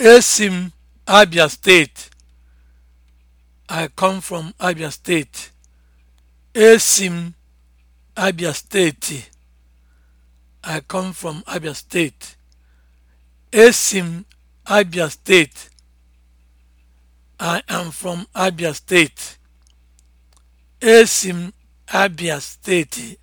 esim Abia steeti. I come from Abia steeti. esim Abia steeti. I come from Abia steeti. Esi Abia steeti. I am from Abia steeti. esim Abia steeti.